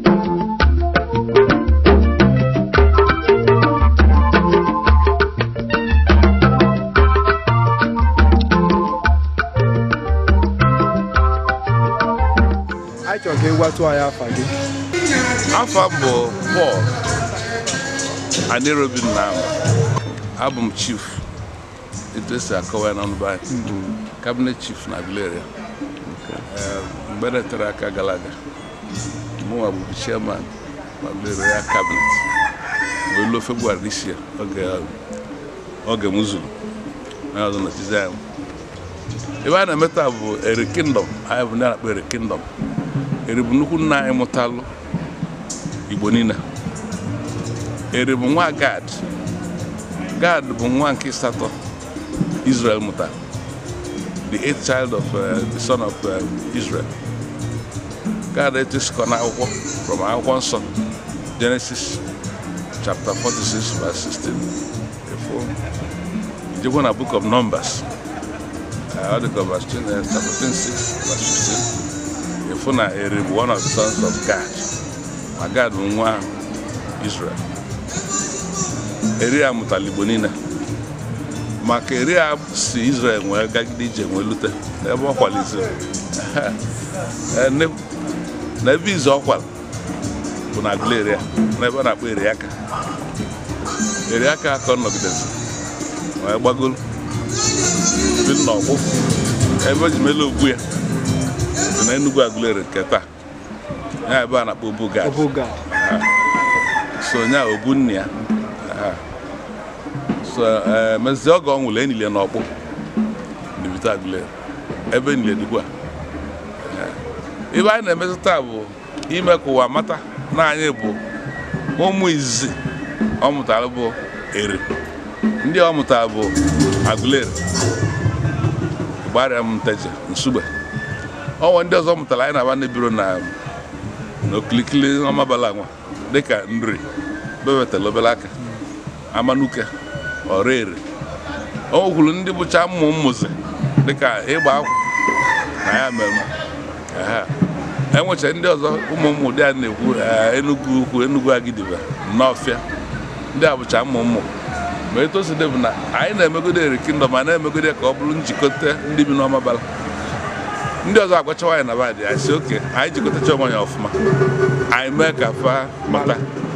anyị chọrọ ka ị gwatụ anyị afa gị Afọ m bụ Paul Anerobi Nnam abụ m chief etu esi akọwa n'ọnụ be kabinet chief na Aguilera ehm, mgbe netara aka gara aga mụnwa bụbu chairman ma bere ya kabinet mgbe luo febụwarị isi ya oge m zuru onye ọzọ nọchizi anyị ebe a na emetụ taa bụ eri kingdom anyị bụ na-akpọ eri kingdom eri bụ nnukwu nna anyị mụtalụ igbo niile eri bụ nwa gad gad bụ nwa nke satọ israel mụta the eighth child of uh, the son of uh, israel Gaa etusikọ n'akwụkwọ from akwụkwọ nsọ Genesis chapter 46 verse 16 efu ijekwa na book of Numbers uh, ọ dịka verse 14 uh, verse 15 efu na eri bụ one of the sons of God ma God bụ nwa Israel eri a mụtara niile maka eri a si Israel nwee gagide ije nwee lute n'ebe ọ kwaliziri eh, na ebe izu ọkwara bụ na agụleri n'ebe a na-akpọ eriaka eriaka ka ọ nọgidezi wee gbagoro bi n'ọgbụ ebe eji mele ogbu ya dị na Enugu agụleri nke taa ya ebe a na-akpọ obugad so nya obu nne ya so eh, mezie oge ọ nwụrụ enile n'ọkpụ dibita agụleri ebe enile dịkwa ebe anyị na-emezi taa bụ ime ka ụwa mata na anyị bụ ụmụ izizi ọ mụtara bụ eri ndị ọ mụtara bụ agụleri gbarịa m nteje nsugbe ọnwa ndị ọzọ mụtara anyị na-aba biro na n'okilikili ọmabala nwa dịka nri bebetala obere aka amanuke ọrụ ere o nwekwuru ndị bụcha mmụ mmụzi dịka ịgba akwụ na ya mere ha enwecha ndị ọzọ ụmụ m ụdị a na-ekwu eh, Enugu ukwu Enugu Agidigba n'ọfịa ndị a bụcha mmụ ma etoside bụ na anyị na-emegode eri kingdom ma na-emegode ka ọ bụrụ njikọta ndị bi n'ọma bala ndị ọzọ agwachawa anyị na badị anyị si oke anyị jikọtacha onwe anyị ọfụma anyị mee ka fa mata